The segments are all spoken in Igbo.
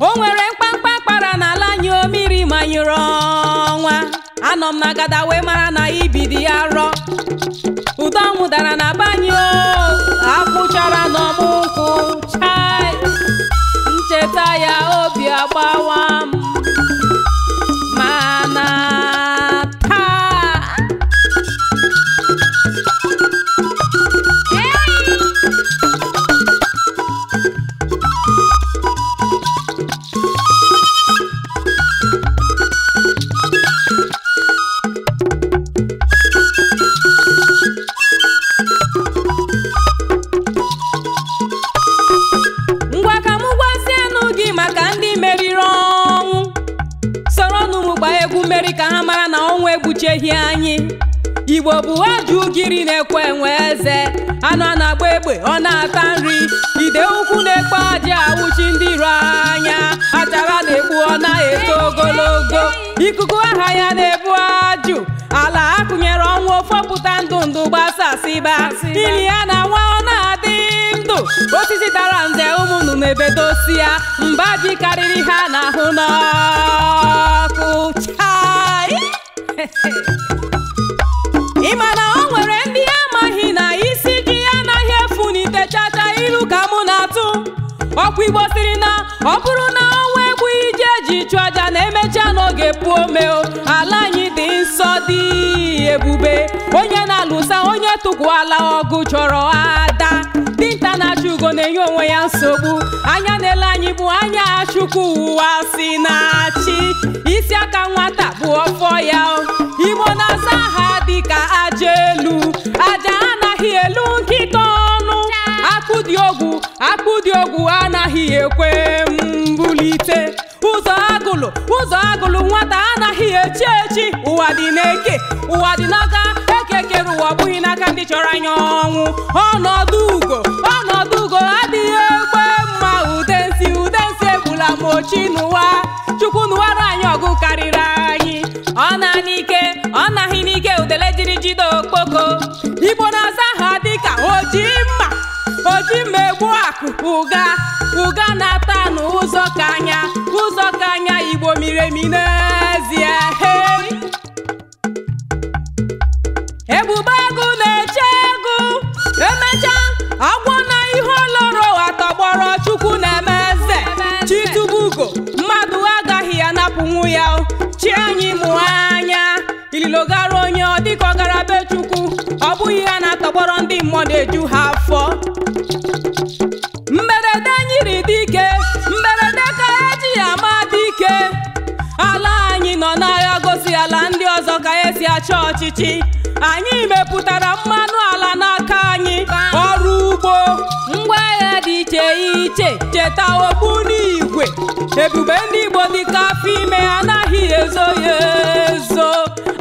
o nwere mkpamkpa kpara n'ala anyị o ma manyụrụ ọnwa anọ m na gada wee mara na ibidi arọ ụdọ nwụdara dara na ka ha mara na ọnwa egbucheghi anyị igbo bụ ajụ ugiri na-ekwe enwe eze anụ a na-agba egbe ọ na-ata nri ide ukwu na-ekpe ajị awụchi ndị iro anya achara na-egbu ọ na-eto ogologo ikuku aha ya na-ebu ajụ ala akụnyere ọnwụ ofepụta ndụ ndụ gbasasịba ili ya na nwa ọ na-adị ndụ osisi dara nze ụmụnụ na-ebedosi ya mba ji karịrị ha n'ahụ n'ọrụ ọkwa igbo siri na ọ bụrụ na ọnwa egbu iji eji chụọ aja na emechaa n'oge pụo meo ala anyị dị nsọ dị ebube onye na-alụsa onye tụkwuala ọgụ chọrọ ada dinta na-achụ ugo na-enye onwe ya nsogbu anya na-ele anyị bụ anya chukwu ụwa si na-achị isi aka nwata bụ ọfọ ya ekwe mbulite ụzọ agụlụ ụzọ agụlụ nwata anaghị echi echi ụwa dị n'eke ụwa dị n'aka eke kere ụwa bụghị n'aka ndị chọrọ anya ọnwụ ọnọdụ ugo ọnọdụ ugo adịghị egbe mma ude nsi ude nsi egbula mochi ochi n'ụwa chukwu n'ụwara anyị ọgụ karịrị anyị ọ na n'ike ọ naghị n'ike udele jiri jide okpoko igbo na-asa ha dịka oji mma oji egbu ụga ụga na-ata n'ụzọ ka anya ụzọ ka anya igbo miri emi n'ezie hei ebube agụ na-eche egụ emecha agwọ na ihe oloro atọgbọrọ chukwu na-eme eze chitubugo mmadụ agaghị anapụnwu ya chi anyị mụ anya ililogara onye ọ dịka ọgara be chukwu ọ bụghị ya na-atọgbọrọ ndị mmụọ na-eju ha afọ ọchịchị anyị mepụtara mmanụ ala n'aka anyị ọrụ ugbo ngwaahịa dị iche iche cheta ogbunigwe ebube ndị Igbo dịka afọ ime anaghị ezo ya ezo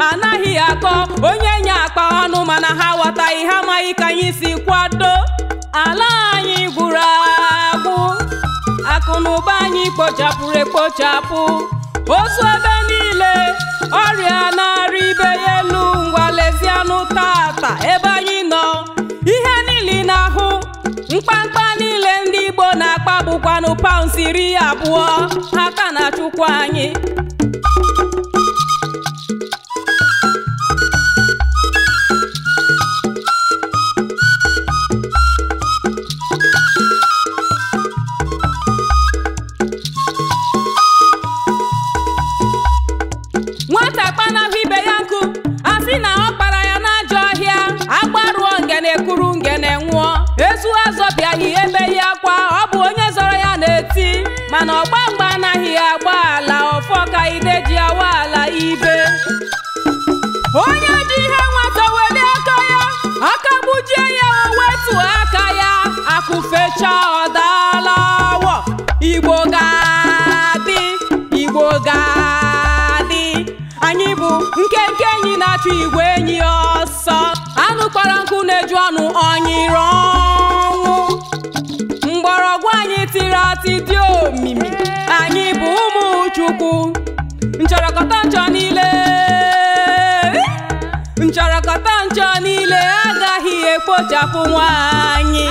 anaghị akọ onye nye akpa ọnụ mana ha wataghị ha amaghị ka anyị si kwado ala anyị gwụrụ agwụ akụnụba anyị kpochapụrụ ekpochapụ ozu ebe niile ọrịa na-arị ibe ya elu ngwa lezianụ tata ebe anyị nọ ihe niile na-ahụ mkpamkpa niile ndị Igbo na-akpa bụkwanụ paụns iri abụọ ha ka na-achụkwa anyị nge ngene nwụọ ezu azọbịaghị emeghị akwa ọ bụ onye zọrọ ya na-eti mana ọgba mgba anaghị agba ala ọfọ ka ide ji awa ala ibe onye ji ihe nwata weli aka ya aka gbujie ya o wetu aka ya akụfecha ọ daala igbo ga igbo ga anyị bụ nkenke enyi na-achọ igwe na-eju ọnụ ọnyịrị ọnwụ mgbọrọgwụ anyị tiri atị dị omimi anyị bụ ụmụ Chukwu nchọrọkọta nchọ niile nchọrọkọta nchọ niile agaghị ekpochapụ nwaanyị